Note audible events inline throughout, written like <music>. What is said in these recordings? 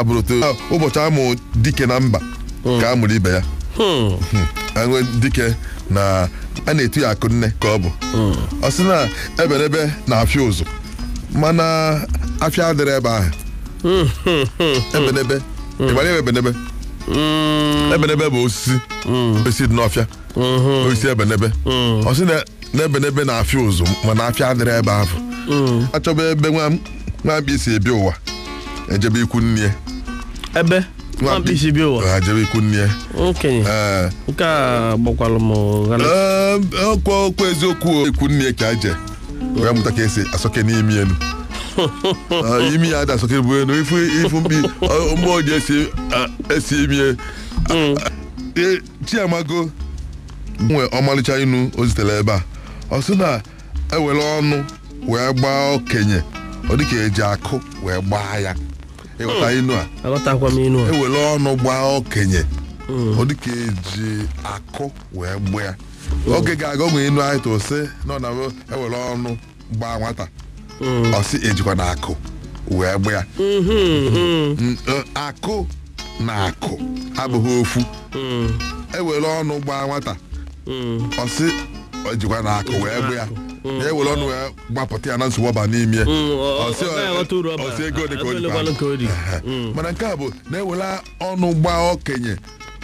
abụrụta ụbọchị amụ dike na mba ka a mụrụ ibe ya aṅụ hmm. dike na a na-etu ya akụ nne ka ọ bụ hmm. ọ sị na eberebe na-afịa ụzụ mana afịa adịrị ebe ahụ hmm. ebenebe ịmara ebe ebenebe ebenebe bụ osisi osisi dị n'ọfịa osisi ebenebe ọ sị na ebenebe na-afịa ụzụ mana afịa adịrị ebe ahụ achọba ebe nwa mkpa isi ebi ụwa ejebe ikwu nne ebe mkpịsị bi ụwa ha jebe ikwu nne okenye nke a gbakwalụ m ghana ọkwa okwu eziokwu ikwu nne ka aje wee mụta ka esi asọke n'imi elu imi ya ada asọke bụ elu ifu ifu mkpi mmụọ ji esi esi imi mm. eh, chiamago nwe ọmalịcha inu o zitere ebe a ọ sị na ewere ọnụ wee gbaa okenye ọ dịka eji akụ wee gbaa ya ịghọta hmm. inu a aghọtakwa m inu a Ewele ọnụ gbaa okenye hmm. ọ dị ka eji akụ wee gbaa ya hmm. oge ga-aga onwe inu anyị tụ sị na ọ na ewele ọnụ gbaa nwata ọ sị ejikwa na akụ wee gbaa ya akụ na akụ abụghị ofu Ewele ọnụ gbaa nwata ọ sị ejikwa na akụ wee gbaa ya na ewere ọnụ ya gbapụta ya na nsogbu n'ime ọsị ego dị ka o dị mana nke a bụ na-ewere ọnụ gba okenye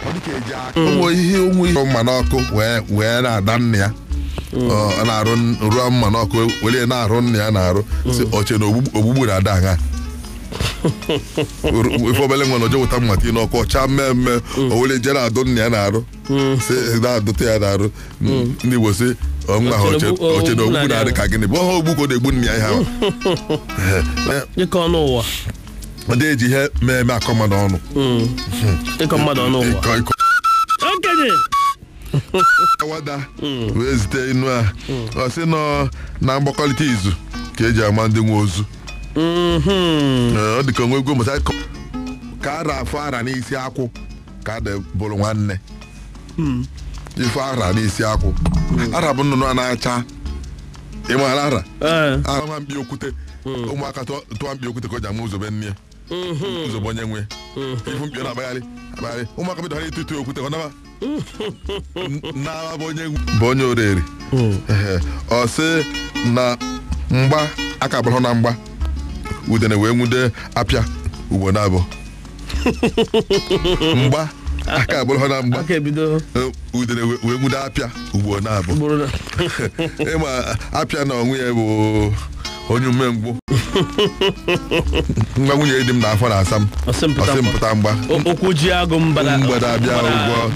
ọ dịka eji akụnwe ihe onwe ihe mma n'ọkụ wee na-ada nna ya na-arụ ruo mma n'ọkụ were na-arụ nna ya na-arụ si oche na ogbugbu na-ada ha ife obele nwe na oje wụta mmata n'ọkụ ọcha mmee mme o were jere adụ nna ya na-arụ si na-adụta ya na-arụ ndị Igbo si ogbu oh, na-adị ka gịnị bụ ọha ogbu ka ọ na-egbu nna ya ịkọ ọnụ ụwa ọ dị eji ihe mee eme akọ mmadụ ọnụ ịkọ hmm. mmadụ ọnụ ụwa okenye <laughs> awada wee zite inu a hmm. ọ sị nọ na mgbakọrịta izu ka eji ama ndị nwe ozu hmm. ọ dị ka onwe egwu mụta ka ara afọ ara n'isi akwụ ka dị bụrụ nwanne ife ara na-esi akwụ hmm. ara bụ nnụnụ a na-acha ịmara ara eh. ara mbi okwute hmm. ụmụaka tụọ mbi okwute ka ọ ji ama ụzọ be nne hmm. ụzọbe onye nwe ifu mkpi na-akpagharị abagharị ụmụaka bidoro ịtụ ịtụ okwute ka ọ n'aba bụ onye onye oriri ọ sị na mgba aka bụrụ na mgba udene wee nwude apịa ugbo na abụọ. <laughs> mgba aka abụrụ ha na mgba udere wee nwude apịa ugboro na-abụ <laughs> ịma apịa na onwe ya bụ onye umengwụ ngwa nwunye dị m n'afọ na asa m ọsịmpụta mgba okwu ji agụ mgbada abịa ụgwọ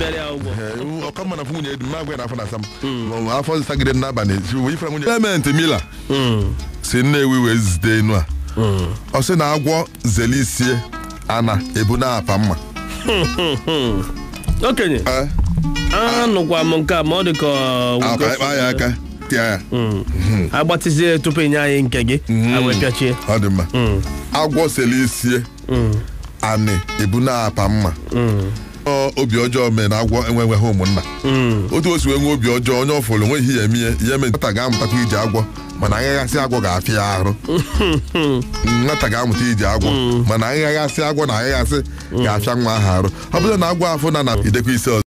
Ọkọ mma hmm. afọ nwunye dị m agwa n'afọ na asa m afọ nsagide n'abalị pementị mila hmm. si nnewi wee zite enu a hmm. ọ sị na agwọ zelisie ana ebu na apa mma Hmm, hmm, hmm. okenye anụkwa m nke a ma ọ dị ka uh, agbatizie ah, tupu inye anyị nke gị awepịachie ọ dị agwọ sele isie anị ebu na apa mma obi ọjọọ mee na agwọ enweghị ụmụnna hmm. otu o si wee nwee obi ọjọọ onye ọfụrụ nweghị ihe ihe mee nata ga-amụtakwa iji agwọ mana aghaghasị agwọ ga-afịa ya arụ hmm. nwata ga-amụta iji agwọ hmm. mana aghaghasị agwọ na aghaghasị ga-afịa nwa ahụ arụ ọ bụrụ na agwọ afụ na na idekwa ise ọzọ